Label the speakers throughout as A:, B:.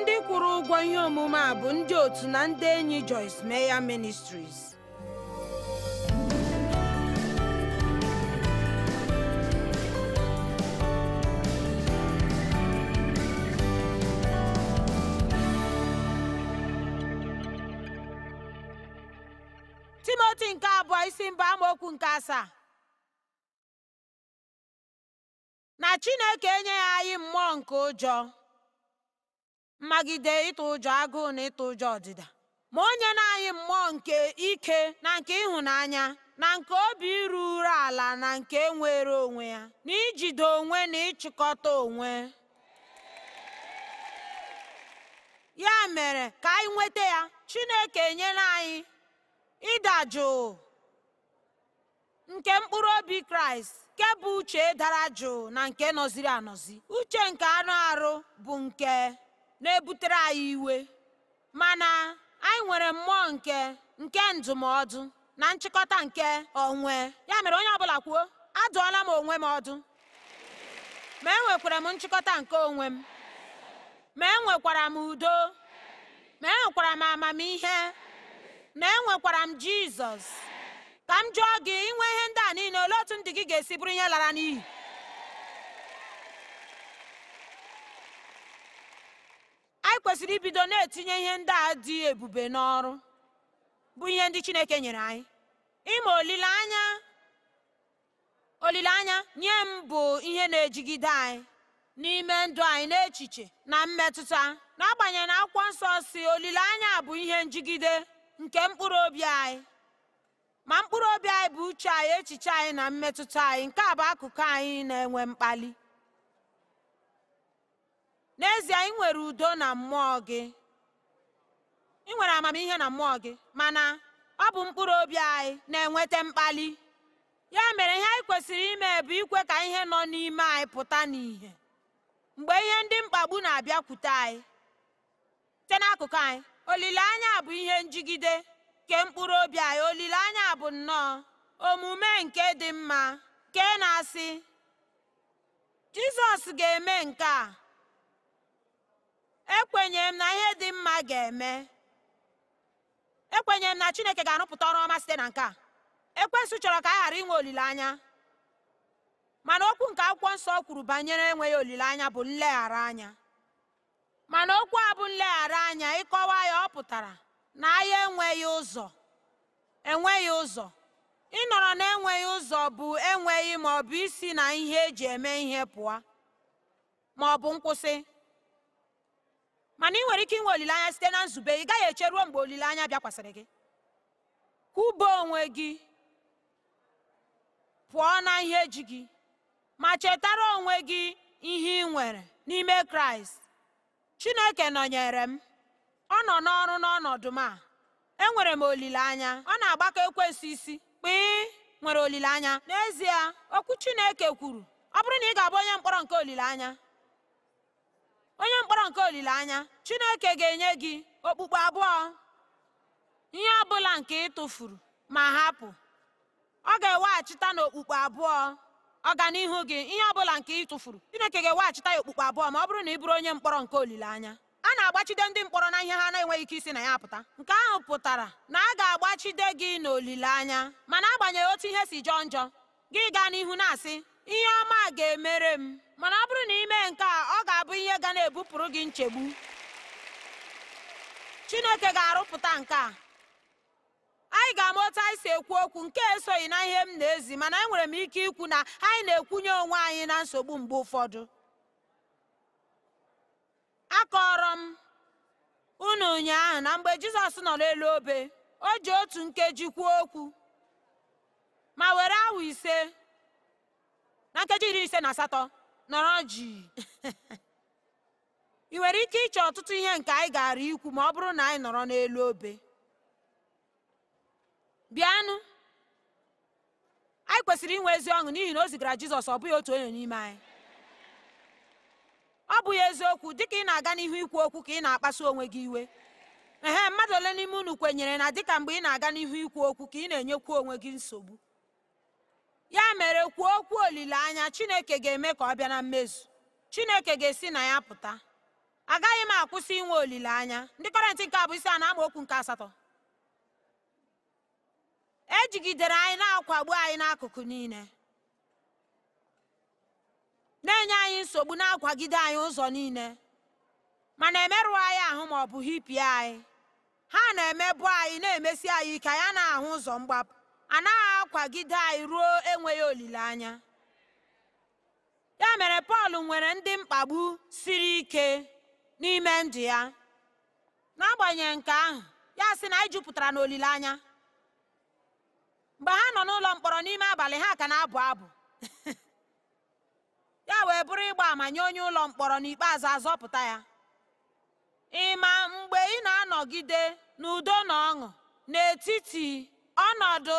A: ndị kwụrụ ụgwọ ihe omume a bụ ndị otu na ndị enyi Joyce Meya Ministries Timoti nke abụọ isi mba amaokwu nke asaa na Chineke enyeghị anyị mmụọ nke ụjọ mmagide ịtụ ụjọ agụụ na ịtụ ụjọ ọdịda ma onye na anyị mmụọ nke ike na nke ịhụnanya na nke obi iru ala na nke nwere onwe ya na ijide onwe na ịchịkọta onwe ya mere ka anyị nweta ya Chineke nyela anyị ịda jụụ nke mkpụrụ obi Kraịst nke bụ uche dara jụụ na nke nọziri anọzi uche nke anụ arụ bụ nke na-ebutere anyị iwe mana anyị nwere mmụọ nke nke ndụmọdụ na nchịkọta nke onwe ya mere onye ọbụla kwuo adụọla m onwe m ọdụ ma enwekwara m nchịkọta nke onwe m ma enwekwara m udo ma enwekwara m amamihe ma enwekwara m jizọs ka m jụọ gị inwe ihe ndị a niile olee otu ndị gị ga-esi bụrụ ihe lara n'iyi kwesịrị ibido na-etinye ihe ndị a dị ebube n'ọrụ bụ ihe ndị chineke nyere anyị ịma olileanya olileanya nye m bụ ihe na-ejigide anyị n'ime ndụ anyị n'echiche na mmetụta n'agbanyeghị na akwụkwọ nsọ si olileanya bụ ihe njigide nke mkpụrụ obi anyị ma mkpụrụ obi anyị bụ uche anyị echiche anyị na mmetụta anyị nke a bụ akụkụ anyị na-enwe mkpali n'ezie ị nwere udo na mmụọ gị ị nwere amamihe na mmụọ gị mana ọ bụ mkpụrụ obi anyị na-enweta mkpali ya mere ihe anyị kwesịrị ime bụ ikwe ka ihe nọ n'ime anyị pụta n'ìhè mgbe ihe ndị mkpagbu na-abịakwute anyị site n'akụkụ anyị olileanya bụ ihe njigide nke mkpụrụ obi anyị olileanya bụ nnọọ omume nke dị mma nke na-asị jizọs ga-eme nke a m na ihe dị mma ga-eme ekwenyere m na chineke ga-arụpụta ọrụ ọma site na nke a ekwensụ chọrọ ka a ghara inwe olileanya mana okwu nke akwụkwọ nsọ kwuru banyere enweghị olileanya bụ nleghara anya mana okwu a bụ nleghara anya ịkọwa ya ọ pụtara na ahịa enweghị ụzọ enweghị ụzọ ịnọrọ na-enweghị ụzọ bụ enweghị ma isi na ihe eji eme ihe pụọ ma nkwụsị mana ị nwere ike inwe olileanya site na nzube ị gaghị eche ruo mgbe olileanya bịakwasịrị gị kwụba onwe gị pụọ na ihe ji gị ma chetara onwe gị ihe ị nwere n'ime kraịst chineke nọnyere m ọ nọ n'ọrụ n'ọnọdụ m a enwere m olileanya ọ na-agbakọ ekwesị isi kpịị nwere olileanya n'ezie okwu chineke kwuru ọ bụrụ na ị ga-abụ onye mkpọrọ nke olileanya onye mkpọrọ nke olileanya chineke ga-enye gị okpukpe abụọ ihe ọ bụla nke ị tụfuru ma hapụ ọ ga-eweghachita n'okpukpe abụọ ọganihu gị ihe ọ bụla nke ị tụfuru chineke ga-eweghachita ya okpukpe abụọ ma ọ bụrụ na ị bụrụ onye mkpọrọ nke olileanya a na-agbachide ndị mkpọrọ na ihe ha na-enweghị ike isi na ya apụta nke ahụ pụtara na a ga-agbachide gị n'olileanya mana agbanyeghị otu ihe si jọọ njọ gị gaa n'ihu na-asị ihe ọma ga-emere m mana ọ bụrụ na ị nke a ọ ga-abụ ihe ga na-ebupụrụ gị nchegbu chineke ga-arụpụta nke a anyị ga-ama otu anyị si ekwu okwu nke esoghị na ihe m na-ezi mana enwere m ike ikwu na anyị na-ekwunye onwe anyị na nsogbu mgbe ụfọdụ akọrọ m unu ụnyaahụ na mgbe jizọs nọ n'elu obe o ji otu nkeji kwuo okwu ma were awa ise na nkeji iri ise na asatọ nọrọ ji ị nwere ike ịchọ ọtụtụ ihe nke anyị gara ikwu ma ọ bụrụ na anyị nọrọ n'elu obe bịanụ anyị kwesịrị inwe ezi ọṅụ n'ihi na o zigara jizọs ọ bụghị otu onye n'ime anyị ọ bụghị eziokwu dịka ị na-aga n'ihu ikwu okwu ka ị na-akpasu onwe gị iwe ehe mmadụ ole n'ime unu kwenyere na dịka mgbe ị na-aga n'ihu ikwu okwu ka ị na-enyekwu onwe gị nsogbu ya mere kwuo okwu olileanya chineke ga-eme ka ọ bịa na mmezu chineke ga-esi na ya pụta agaghị m akwụsị inwe olileanya ndị kọrentị nke a bụ isi a na okwu nke asatọ ejigidere anyị na-akwagbu anyị n'akụkụ niile na-enye anyị nsogbu na-akwagide anyị ụzọ niile mana emerụ anyị ahụ ma ọ bụ hipie anyị ha na-emebu anyị na-emesi anyị ike ya na-ahụ ụzọ mgbapụ anaghị akwagide anyị ruo enweghị olileanya ya mere pọl nwere ndị mkpagbu siri ike n'ime ndụ ya n'agbanyeghị nke ahụ ya sị na anyị jupụtara n'olileanya mgbe ha nọ n'ụlọ mkpọrọ n'ime abalị ha ka na-abụ abụ ya wee bụrụ ịgba ama nye onye ụlọ mkpọrọ n'ikpeazụ azọpụta ya ịma mgbe ị na-anọgide n'udo na ọṅụ n'etiti ọnọdụ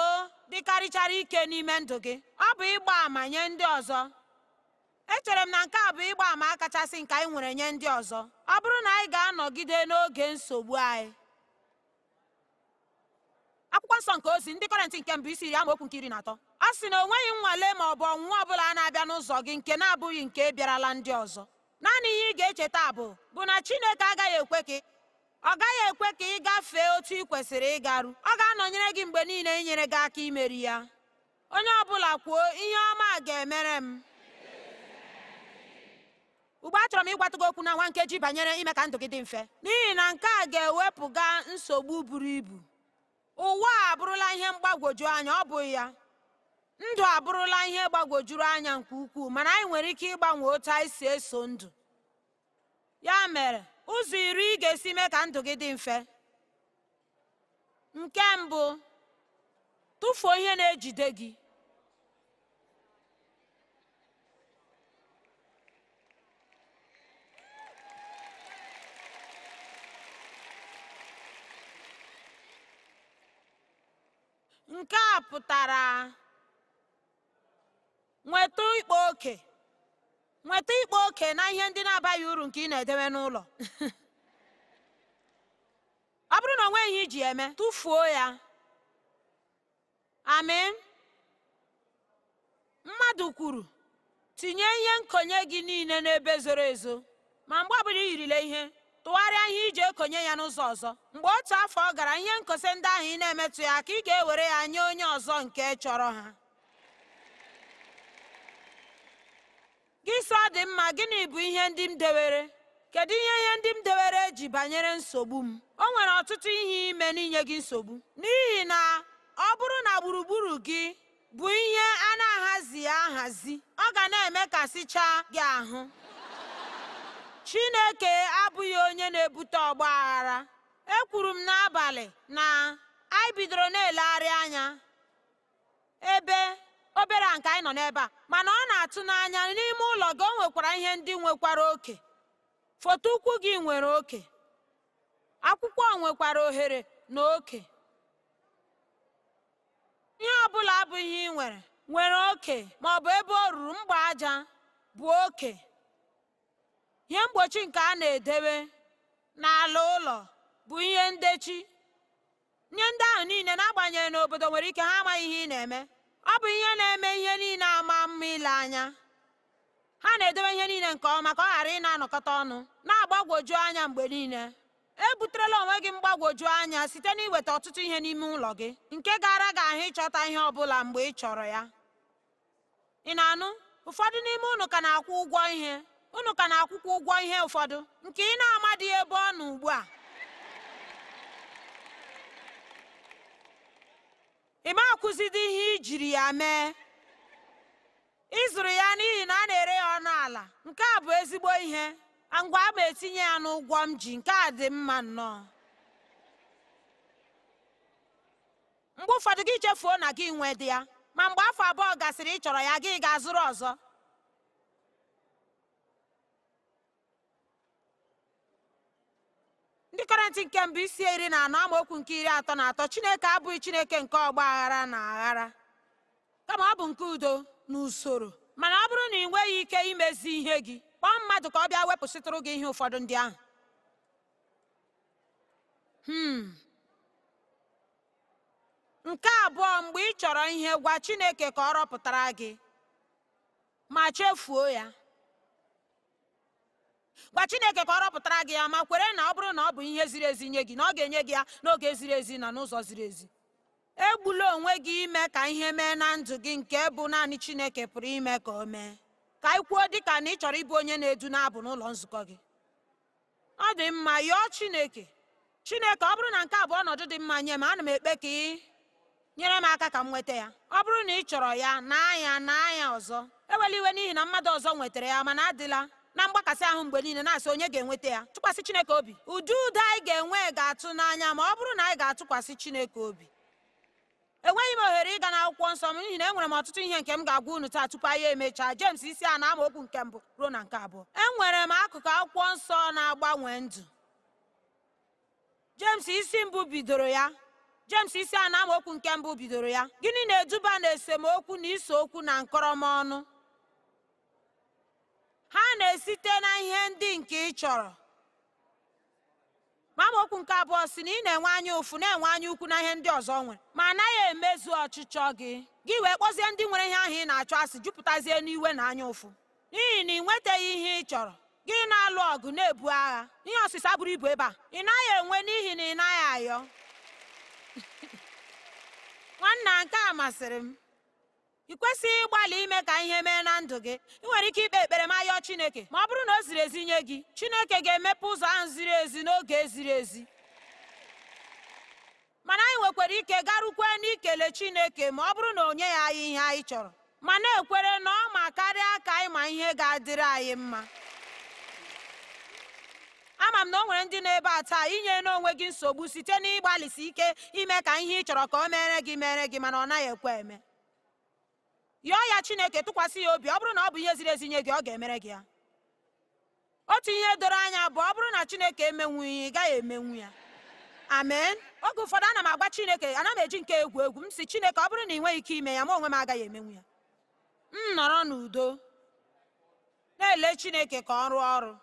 A: dịkarịchara ike n'ime ndụ gị ọ bụ ịgba àmà nye ndị ọzọ echere m na nke a bụ ịgba àmà kachasị nke anyị nwere nye ndị ọzọ ọ bụrụ na anyị ga-anọgide n'oge nsogbu anyị akwụkwọ nsọ nke ozi ndị kọrentị nke mbụ isi iri amaokwu nke iri na atọ ọ sị na o nweghị nnwale ma ọ bụ ọnwụnwa ọ bụla na-abịa n'ụzọ gị nke na-abụghị nke bịarala ndị ọzọ naanị ihe ị ga-echeta bụ bụ na Chineke agaghị ekwe gị ọ gaghị ekwe ka ị gafee otu ị kwesịrị ịgaru ọ ga-anọnyere gị mgbe niile inyere gị aka imeri ya onye ọbụla kwuo ihe ọma ga-emere m ugbe a chọrọ m ịgwata gị okwu na nwa nkeji banyere ime ka ndụ gị dị mfe n'ihi na nke a ga-ewepụga nsogbu buru ibu ụwa a abụrụla ihe mgbagwoju anya ọ bụghị ya ndụ abụrụla ihe gbagwojuru anya nke ukwuu mana anyị nwere ike ịgbanwe otu anyị si eso ndụ ya mere ụzọ iri ị ga-esi mee ka ndụ gị dị mfe nke mbụ tụfuo ihe na-ejide gị nke a pụtara nweta ịkpa oke nweta ikpa oke na ihe ndị na-abaghị uru nke ị na-edewe n'ụlọ ọ bụrụ na o nweghị iji eme tụfuo ya amị mmadụ kwuru tinye ihe nkonye gị niile n'ebe zoro ezo ma mgbe ọbụla i yirile ihe tụgharịa ihe iji ekonye ya n'ụzọ ọzọ mgbe otu afọ gara ihe nkose ndị ahụ ị na-emetụ ya ka ị ga-ewere ya nye onye ọzọ nke chọrọ ha gị sọ dị mma gịnị bụ ihe ndị m dewere kedu ihe ihe ndị m dewere ji banyere nsogbu m o nwere ọtụtụ ihe ime n'inye gị nsogbu n'ihi na ọ bụrụ na gburugburu gị bụ ihe a na-ahazi ahazi ọ ga na eme sichaa gị ahụ chineke abụghị onye na-ebute ọgba aghara ekwuru m n'abalị na anyị bidoro na-elegharị anya ebe obere a nke anyị nọ n'ebe a mana ọ na-atụ n'anya n'ime ụlọ gị o nwekwara ihe ndị nwekwara oke foto ụkwụ gị nwere oke akwụkwọ nwekwara ohere na oke ihe ọ bụla abụghị ihe ị nwere nwere oke ma ọ bụ ebe o ruru mgba aja bụ oke ihe mgbochi nke a na-edebe n'ala ụlọ bụ ihe ndechi ihe ndị ahụ niile n'agbanyeghị n'obodo nwere ike ha amaghị ihe ị na-eme ọ bụ ihe na-eme ihe niile ama mma ile anya ha na-edobe ihe niile nke ọma ka ọ ghara ị na-anọkọta ọnụ na-agbagwoju anya mgbe niile e buterela onwe gị mgbagwoju anya site n'iweta ọtụtụ ihe n'ime ụlọ gị nke gara gị ahụ ịchọta ihe ọ bụla mgbe ị chọrọ ya ị na-anụ ụfọdụ n'ime ụnụ ka na-akwụ ụgwọ ihe ụnụ ka na akwụkwụ ụgwọ ihe ụfọdụ nke ị na dị ebe ọ nọ ugbu a ị ma akwụzidi ihe ijiri ya mee ịzụrụ ya n'ihi na a na-ere ya ọnụ ala nke a bụ ezigbo ihe ngwa a ma etinye ya n'ụgwọ m ji nke a dị mma nnọọ mgbe ụfọdụ gị chefuo na gị nwe dị ya ma mgbe afọ abụọ gasịrị ị chọrọ ya gị ga-azụrụ ọzọ isi nke mbụ isi iri na anọ amaokwu nke iri atọ na atọ chineke abụghị chineke nke ọgba aghara na aghara kama ọ bụ nke udo na usoro mana ọ bụrụ na ị nweghị ike imezi ihe gị kpọọ mmadụ ka ọ bịa wepụsịtụrụ gị ihe ụfọdụ ndị ahụ hmm. nke abụọ mgbe ị chọrọ ihe gwa chineke ka ọ rọpụtara gị ma chefuo ya gwa chineke ka ọ rọpụtara gị ya ma kwere na ọ bụrụ na ọ bụ ihe ziri ezi nye gị na ọ ga-enye gị ya n'oge ziri ezi na n'ụzọ ziri ezi egbula onwe gị ime ka ihe mee na ndụ gị nke bụ naanị chineke pụrụ ime ka o mee ka ị kwuo dịka na ị chọrọ ịbụ onye na-edu na-abụ n'ụlọ nzukọ gị ọ dị mma yọọ chineke chineke ọ bụrụ na nke a bụ ọnọdụ dị mma nye m ana m ekpe ka ị nyere m aka ka m nweta ya ọ bụrụ na ị chọrọ ya na anya na anya ọzọ ewela iwe n'ihi na mmadụ ọzọ nwetara ya mana adịla na mgbakasị ahụ mgbe niile na-asị onye ga-enweta ya tụkwasị chineke obi ụdị udo anyị ga-enwe ga-atụ n'anya ma ọ bụrụ na anyị ga-atụkwasị chineke obi enweghị m ohere ịga akwụkwọ nsọ m n'ihi na enwere m ọtụtụ ihe nke m ga-agwa unu taa tupu anyị emechaa jems isi a na-amaokwu nke mbụ ruo na nke abụọ enwere m akụkụ akwụkwọ nsọ na-agbanwe ndụ jems isi mbụ bidoro ya jems isi a na-amaokwu nke mbụ bidoro ya gịnị na-eduba na esemokwu na ise okwu na nkọrọma ọnụ ha na-esite na ihe ndị nke ị chọrọ okwu nke abụọ si na ị na-enwe anya ụfụ na-enwe anya ukwu na ihe ndị ọzọ nwere ma anaghị emezu ọchịchọ gị gị wee kpọzie ndị nwere ihe ahụ ị na-achọ asị jupụtazie n'iwe na anya ụfụ n'ihi na ị nwetaghị ihe ị chọrọ gị na-alụ ọgụ na-ebu agha ihe ọsịsa buru ibu ebe a ị naghị enwe n'ihi na ị naghị ayọ nwanna nke a masịrị m ị kwesịghị ịgbalị ime ka ihe mee na ndụ gị ị nwere ike ikpe ekpere ma yọọ chineke ma ọ bụrụ na o ziri ezi nye gị chineke ga-emepe ụzọ ahụ ziri ezi n'oge ziri ezi mana anyị nwekwara ike garukwe n'ikele chineke ma ọ bụrụ na onye ya anyị ihe anyị chọrọ ma na-ekwere na ọ ma karịa ka anyị ma ihe ga-adịrị anyị mma ama m na o nwere ndị na-ebe a taa inye n'onwe gị nsogbu site n'ịgbalịsi ike ime ka ihe ị chọrọ ka o mere gị mere gị mana ọ naghị ekwe eme yọọ ya chineke tụkwasị ya obi ọ bụrụ na ọ bụ ihe ziri ezi nye gị ọ ga-emere gị ya otu ihe doro anya bụ ọ bụrụ na chineke emenwu ya ị gaghị emenwu ya amen oge ụfọdụ ana m agwa chineke ana m eji nke egwu egwu m si chineke ọ bụrụ na ị nweghị ike ime ya ma onwe m agaghị emenwu ya m nọrọ n'udo na-ele chineke ka ọ rụọ ọrụ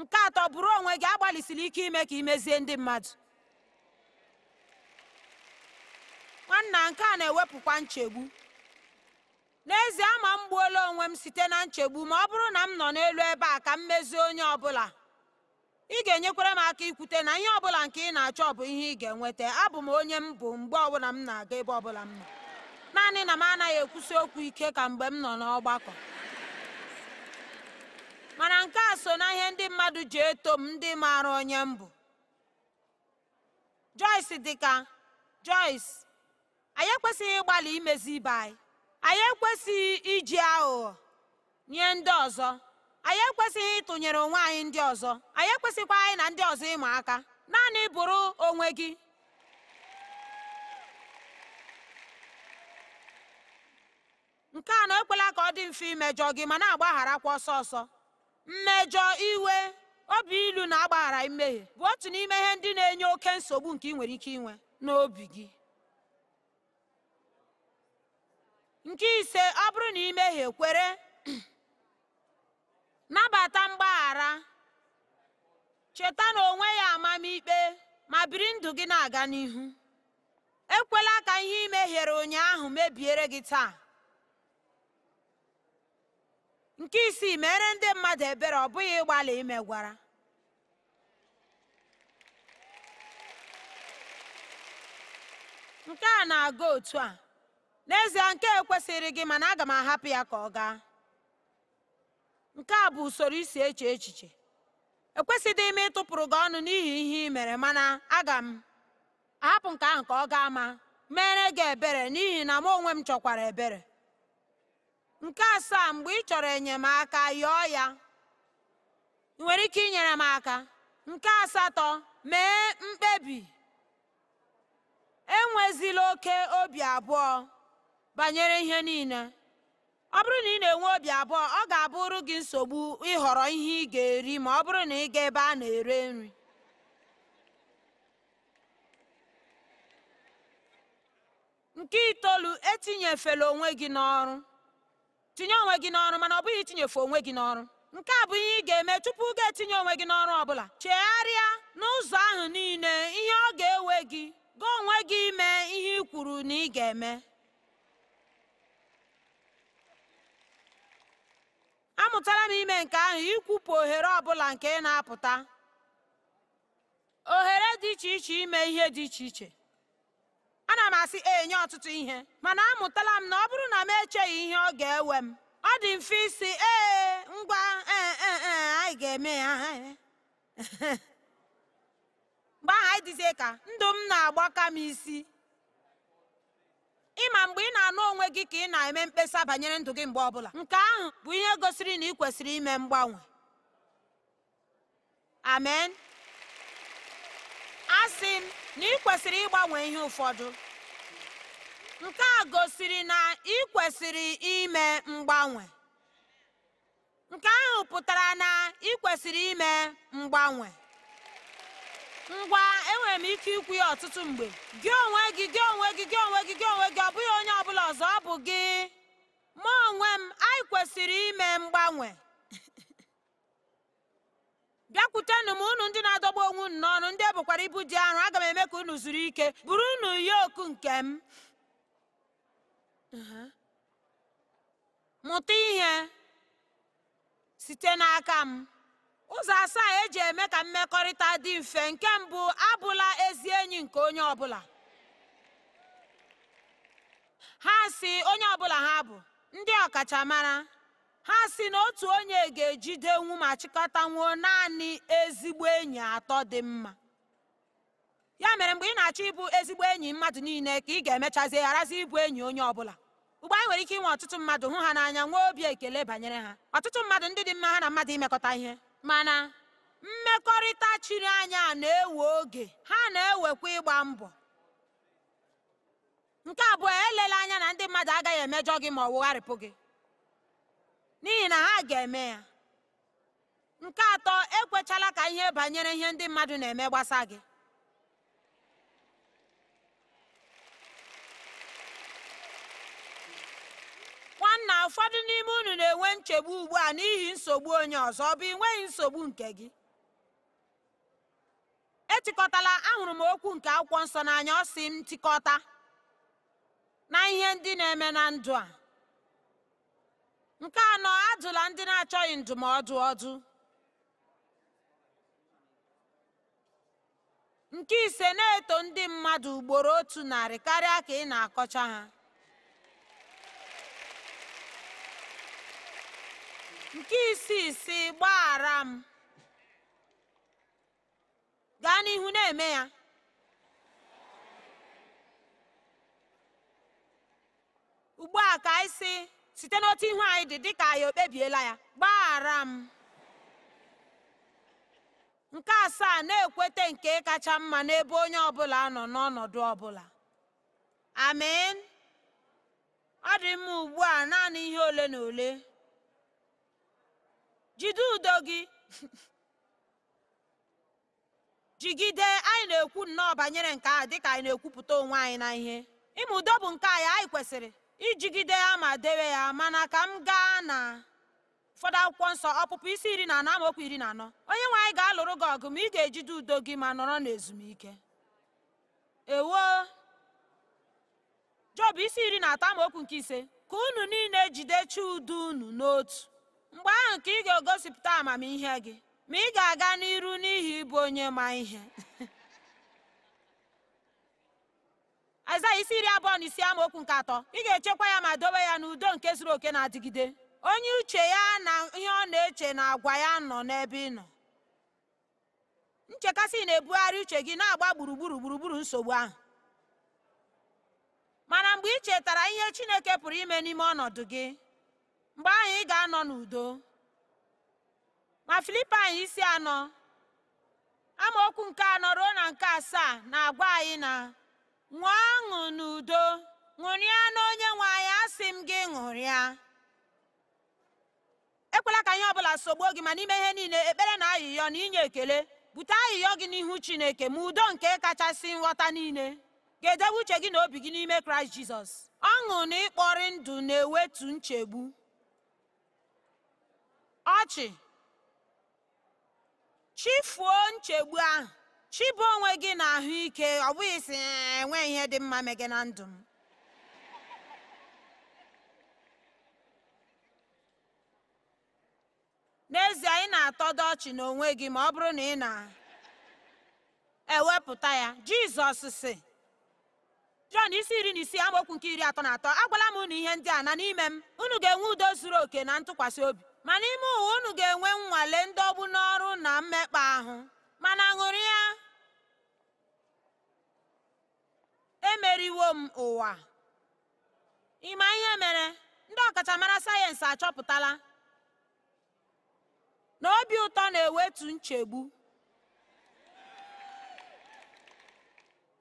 A: nke atọ bụrụ onwe gị agbalịsiri ike ime ka imezie ndị mmadụ nwanna nke a na-ewepụkwa nchegbu n'ezie ama m gbuola onwe m site na nchegbu ma ọ bụrụ na m nọ n'elu ebe a ka m mezie onye ọbụla ị ga-enyekwara m aka ikwute na ihe ọbụla nke ị na-achọ bụ ihe ị ga-enweta abụ m onye m bụ mgbe ọbụla m na-aga ebe ọbụla m nọ naanị na m anaghị ekwusi okwu ike ka mgbe m nọ n'ọgbakọ mana nke a so na ihe ndị mmadụ ji eto m ndị maara onye m bụ Joyce dịka Joyce anyị ekwesịghị ịgbalị imezi ibe anyị anyị ekwesịghị iji aghụghọ nye ndị ọzọ anyị ekwesịghị ịtụnyere onwe anyị ndị ọzọ anyị ekwesịkwa anyị na ndị ọzọ ịma aka naanị bụrụ onwe gị nke a na ekwela ka ọ dị mfe imejọ gị ma na-agbagharakwa ọsọ ọsọ mmejọ iwe obi ilu na-agbaghara mmehie bụ otu n'ime ihe ndị na-enye oke nsogbu nke ị nwere ike inwe n'obi gị nke ise ọ bụrụ na ị mehie kwere nabata mgbaghara cheta na onwe ya amamikpe ma biri ndụ gị na-aga n'ihu ekwela ka ihe i mehiere ụnyaahụ mebiere gị taa nke isii mere ndị mmadụ ebere ọ bụghị ịgbalị imegwara nke a na-aga otu a n'ezie nke ekwesịrị gị mana aga m ahapụ ya ka ọ gaa nke a bụ usoro isi eche echiche ekwesịghị m ịtụpụrụ gị ọnụ n'ihi ihe ị mere mana aga m ahapụ nke ahụ ka ọ gaa ma mere gị ebere n'ihi na m onwe m chọkwara ebere nke asaa mgbe ị chọrọ enyemaka yọọ ya ị nwere ike inyere m aka nke asatọ mee mkpebi enwezila oke obi abụọ banyere ihe niile ọ bụrụ na ị na-enwe obi abụọ ọ ga-abụrụ gị nsogbu ịhọrọ ihe ị ga-eri ma ọ bụrụ na ị ga ebe a na-ere nri nke itoolu etinyefela onwe gị n'ọrụ tinye onwe gị n'ọrụ mana ọ bụghị itinyefe onwe gị n'ọrụ nke a bụ ihe ị ga-eme tupu ga-etinye onwe gị n'ọrụ ọ bụla chegharịa n'ụzọ ahụ niile ihe ọ ga-ewe gị gaa onwe gị ime ihe ị kwuru na ị ga-eme amụtala m ime nke ahụ ikwupụ ohere ọbụla nke ị na-apụta Oghere dị iche iche ime ihe dị iche iche ana m asị enye ọtụtụ ihe mana amụtala m na ọ bụrụ na m echeghị ihe ọ ga-ewe m ọ dị mfe isi ee ngwa e, e, e, anyị ga-eme ya mgbe ahụ anyị dịzie ka ndụ m na-agbaka m isi ịma mgbe ị na-anụ onwe gị ka ị na-eme mkpesa banyere ndụ gị mgbe ọbụla nke ahụ bụ ihe gosiri na ị kwesịrị ime mgbanwe amen a sị na ị kwesịrị ịgbanwe ihe ụfọdụ nke a gosiri na ị kwesịrị ime mgbanwe nke ahụ pụtara na ị kwesịrị ime mgbanwe ngwa enwere m ike ikwu ya ọtụtụ mgbe gị onwe gị onwe m anyị kwesịrị ime mgbanwe bịakwutenụ m unu ndị na-adọgbu onwe unu n'ọnụ ndị ebukwara ibu dị arọ aga m eme ka unu zuru ike buru unu oku nke m uh-huh. mụta ihe site n'aka m ụzọ asaa eji eme ka mmekọrịta dị mfe nke mbụ abụla ezi enyi nke onye ọbụla ha si onye ọbụla ha bụ ndị ọkachamara ha si na otu onye ga-ejidenwu ma chịkọtanwuo naanị ezigbo enyi atọ dị mma ya mere mgbe ị na-achọ ịbụ ezigbo enyi mmadụ niile ka ị ga-emechazi gharazi ịbụ enyi onye ọbụla ugbu anyị nwere ike inwe ọtụtụ mmadụ hụ ha n'anya nwee obi ekele banyere ha ọtụtụ mmadụ ndị dị mma ha na mmadụ imekọta ihe mana mmekọrịta chiri anya na-ewe oge ha na-ewekwa ịgba mbọ nke abụọ elela anya na ndị mmadụ agaghị emejọ gị ma ọ wụgharịpụ gị n'ihi na ha ga-eme ya nke atọ ekwechala ka ihe banyere ihe ndị mmadụ na-eme gbasa gị nwanna ụfọdụ n'ime unu na-enwe nchegbu ugbu a n'ihi nsogbu onye ọzọ ọ bụ ị nsogbu nke gị etikọtala ahụrụ m okwu nke akwụkwọ nsọ n'anya ọ sị m na ihe ndị na-eme na ndụ a nke anọ ajụla ndị na-achọghị ndụmọdụ ọdụ nke ise na-eto ndị mmadụ ugboro otu narị karịa ka ị na-akọcha ha nke isi si gbaghara m gaa n'ihu na-eme ya ugbu a ka anyị si site n'otu ihu anyị dị dịka anyị okpebiela ya gbaghara m nke asaa na-ekweta nke kacha mma n'ebe onye ọbụla nọ n'ọnọdụ ọbụla amen ọ dị mma ugbu a naanị ihe ole na ole jide udo gị jigide anyị na-ekwu nnọọ banyere nke ahụ dịka anyị na-ekwupụta onwe anyị na ihe ime udo bụ nke anyị anyị kwesịrị ijigide ya ma dewe ya mana ka m gaa na ụfọdụ akwụkwọ nsọ ọpụpụ isi iri na anọ amaokwu iri na anọ onye nwe anyị ga-alụrụ gị ọgụ ma ị ga-ejide udo gị ma nọrọ n'ezumike ewo job isi iri na atọ amaokwu nke ise ka unu niile jide chi udo unu n'otu mgbe ahụ ka ị ga-egosipụta amamihe gị ma ị ga-aga n'iru n'ihi ịbụ onye ma ihe Azaghị isi iri abụọ na isi amaokwu nke atọ ị ga-echekwa ya ma dowe ya n'udo nke zuru oke na-adịgide onye uche ya na ihe ọ na-eche na agwa ya nọ n'ebe ị nọ nchekasị na-ebugharị uche gị na-agba gburugburu gburugburu nsogbu ahụ mana mgbe ị chetara ihe chineke pụrụ ime n'ime ọnọdụ gị mgbe ahụ ị ga-anọ n'udo ma filipain isi anọ amaokwu nke anọ ruo na nke asaa na-agwa anyị na ṅụọ ọṅụ n'udo ṅụrịa n'onye nwe anyị asị m gị ṅụrịa ekwela ka ihe ọbụla sogbuo gị mana ime ihe niile ekpere na ayịyọ na inye ekele bute ayịyọ gị n'ihu chineke ma udo nke kachasị nghọta niile ga-edobe uche gị na obi gị n'ime kraịst jizọs ọṅụ na ịkpọrị ndụ na-ewetu nchegbu ọchị chifuo nchegbu ahụ chibu onwe gị na ahụike ọ bụghị si enwe ihe dị mma mege na ndụ m n'ezie ị na-atọdo ọchị n'onwe gị ma ọ bụrụ na ị na-ewepụta ya jizọs si jọn isi iri na isii amaokwu nke iri atọ na atọ agwala m unu ihe ndị a na n'ime m unu ga-enwe udo zuru oke na ntụkwasị obi ma n'ime ụwa unu ga-enwe nnwale ọgbụ n'ọrụ na mmekpa ahụ mana ṅụrụ ya emeriwo m ụwa ịma ihe mere ndị ọkachamara sayensị achọpụtala na obi ụtọ na-ewetu nchegbu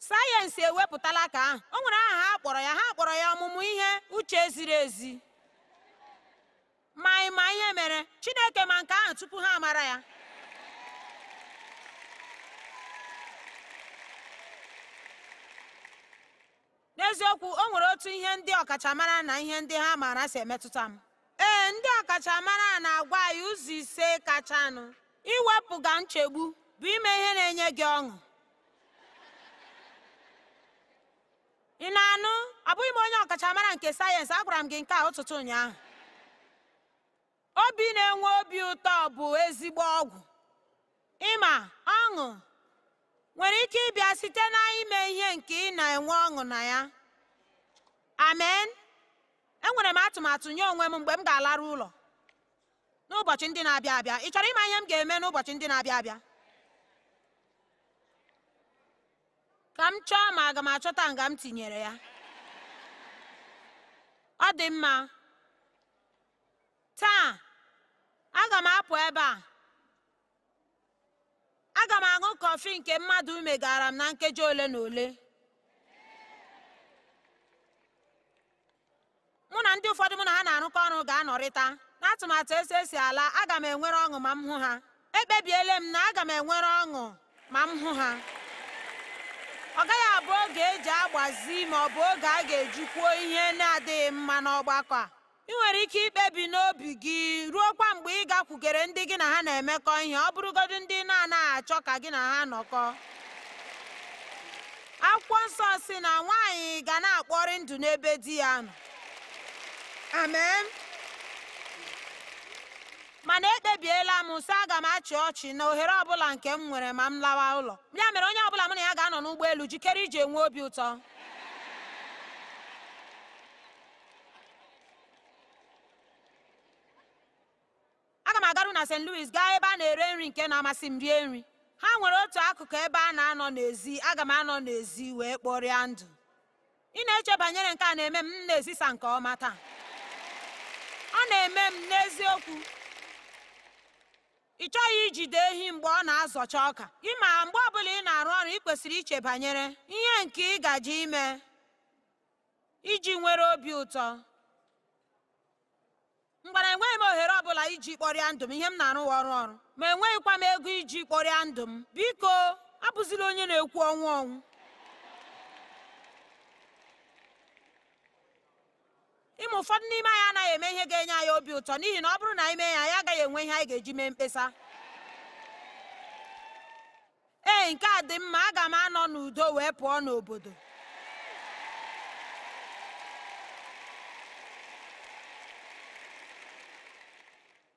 A: sayensị ewepụtala ka ahụ o nwere aha ha kpọrọ ya ha kpọrọ ya ọmụmụ ihe uche ziri ezi ma ịma ihe mere Chineke ma nke ahụ tupu ha mara ya n'eziokwu o nwere otu ihe ndị ọkachamara na ihe ndị ha maara si emetụta m ee ndị ọkachamara na-agwa anyị ụzọ ise kachanụ iwepụga nchegbu bụ ime ihe na-enye gị ọṅụ ị na-anụ ọ bụghị m onye ọkachamara nke sayensị agwara m gị nke a ụtụtụ ụnyaahụ obi na-enwe obi ụtọ bụ ezigbo ọgwụ ịma ọṅụ nwere ike ịbịa site na ime ihe nke ị na-enwe ọṅụ na ya amen enwere m atụmatụ nye onwe m mgbe m ga-alarụ ụlọ n'ụbọchị ndị na-abịa abịa ị chọrọ ịma ihe m ga-eme n'ụbọchị ndị na-abịa abịa ka m chọọ ma aga m achọta nga m tinyere ya ọ dị mma taa aga m apụ ebe a aga m aṅụ kọfị nke mmadụ megara m na nkeji ole na ole mụ na ndị ụfọdụ mụ na ha na-arụkọ ọrụ ga-anọrịta na atụmatụ esi esi ala aga m enwere ọṅụ ma m hụ ha ekpebiela m na aga m enwere ọṅụ ma m hụ ha ọ gaghị abụ oge eji agbazi ma ọ bụ oge a ga-ejikwuo ihe na-adịghị mma n'ọgbakọ a ị nwere ike ikpebi n'obi gị ruo kwa mgbe ị gakwugere ndị gị na ha na-emekọ ihe ọ bụrụgodu ndị na-anaghị achọ ka gị na ha nọkọ akwụkwọ nsọ si na nwaanyị ga na-akpọrị ndụ n'ebe di ya nọ amen mana ekpebiela m sị aga m achị ọchị na ohere ọbụla nke m nwere ma m lawa ụlọ ya mere onye ọbụla m na ya ga-anọ n'ụgbọelu jikere iji enwe obi ụtọ aga m agaru na st louis gaa ebe a na-ere nri nke na-amasị m rie nri ha nwere otu akụkụ ebe a na-anọ n'ezi aga m anọ n'ezi wee kpọrịa ndụ ị na-eche banyere nke a na-eme m na-ezisa nke ọma taa ọ na-eme m n'eziokwu ị chọghị ijide ehi mgbe ọ na-azọcha ọka ị ma mgbe ọbụla ị na-arụ ọrụ ị kwesịrị iche banyere ihe nke ị gaje ime iji nwere obi ụtọ mgbara enweghị m ohere ọbụla iji kpọrịa ndụ m ihe m na-arụ ọrụ ọrụ ma enweghịkwa m ego iji kpọrịa ndụ m biko abụzila onye na-ekwu ọnwụ ọnwụ ịma ụfọdụ n'ime anyị anaghị eme ihe ga-enye anyị obi ụtọ n'ihi na ọ bụrụ na anyị mee anyị agaghị enwe ihe anyị ga-eji mee mkpesa ee nke a dị mma aga m anọ n'udo wee pụọ n'obodo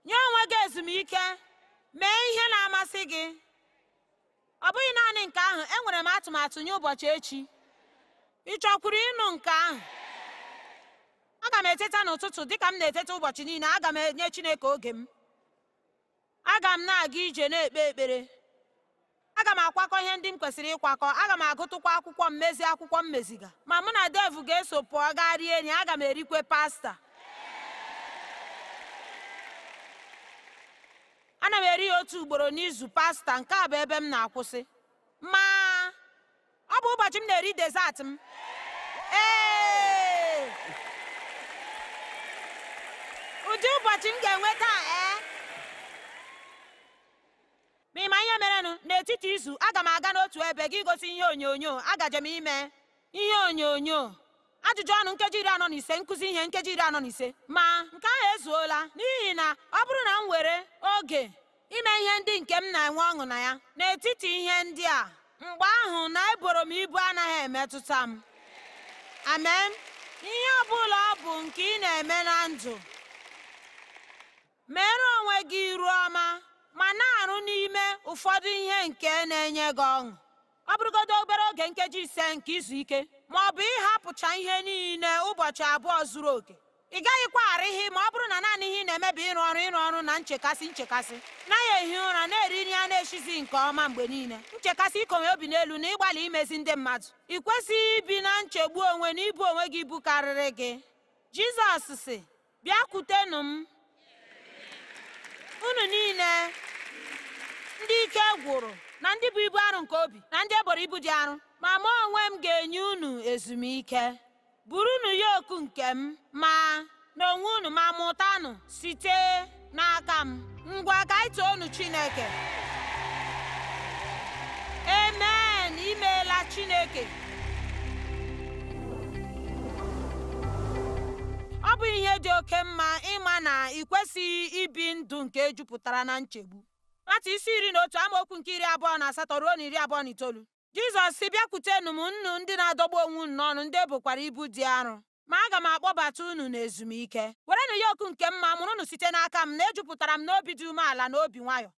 A: nye onwe gị ezumike mee ihe na-amasị gị ọ bụghị naanị nke ahụ enwere m atụmatụ nye ụbọchị echi ị chọkwuru ịnụ nke ahụ aga m eteta n'ụtụtụ dịka m na-eteta ụbọchị niile aga m enye Chineke oge m aga m na-aga ije na-ekpe ekpere aga m akwakọ ihe ndị m kwesịrị ịkwakọ aga m agụtụkwa akwụkwọ m mezi akwụkwọ m meziga ma mụ na devụ ga-eso pụọ gaa rie enyi aga m erikwe pasta ana m eri ya otu ugboro n'izu pasta nke a bụ ebe m na-akwụsị ma ọ bụ ụbọchị m na-eri dezat m ụdị ụbọchị m ga-enwe taa ee eh? ma ịma ihe merenụ n'etiti izu aga m aga n'otu ebe gị gosi ihe onyonyo agaje m ime ihe onyonyo ajụjụ ọnụ nkeji iri anọ na ise nkụzi ihe nkeji iri anọ na ise ma nke ahụ ezuola n'ihi na ọ bụrụ na m were oge ime ihe ndị nke m na-enwe ọṅụ na ya n'etiti ihe ndị a mgbe ahụ na eboro m ibu anaghị emetụta m amen ihe ọ bụla ọ bụ nke ị na-eme na ndụ meere onwe gị iru ọma ma na-arụ n'ime ụfọdụ ihe nke na-enye gị ọṅụ ọ bụrụgodo obere oge nkeji ise nke izu ike ma ọ bụ ịhapụcha ihe niile ụbọchị abụọ zuru oke ị gaghịkwa ara ihe ma ọ bụrụ na naanị ihe ị na-eme ịrụ ọrụ ịrụ ọrụ na nchekasị nchekasị naghị ehi ụra na-eri nri a na-eshizi nke ọma mgbe niile nchekasị ikonwe obi n'elu na ịgbalị imezi ndị mmadụ ị kwesịghị ibi na nchegbu onwe na ibu onwe gị ibu gị jizọs sị bịakwutenụ m unu niile ndị ike gwụrụ na ndị bụ ibu arụ nke obi na ndị eboro ibu dị arụ ma mụ onwe m ga-enye unu ezumike ya oku nke m ma na onwe unu ma mụtanụ site n'aka m ngwa ka anyị too unu Chineke amen imeela Chineke dị oke mma ịma na ị kwesịghị ibi ndụ nke jupụtara na nchegbu nwata isi iri na otu amaokwu nke iri abụọ na asatọ ruo na iri abụọ na itoolu jizọs si bịakwutenu m nnu ndị na-adọgbu onwe unu n'ọnụ ndị ebukwara ibu dị arọ ma aga m akpọbata unu n'ezumike werenụ okwu nke mma unu site n'aka m na-ejupụtara m n'obi dị umeala na obi nwayọ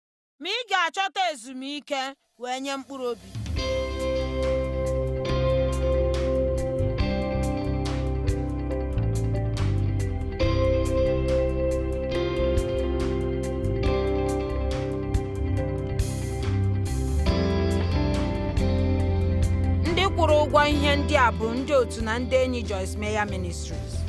A: ma ị ga-achọta ezumike wee nye mkpụrụ obi kwụrụ ụgwọ ihe ndị a bụ ndị otu na ndị enyi Joyce Meyer Ministries.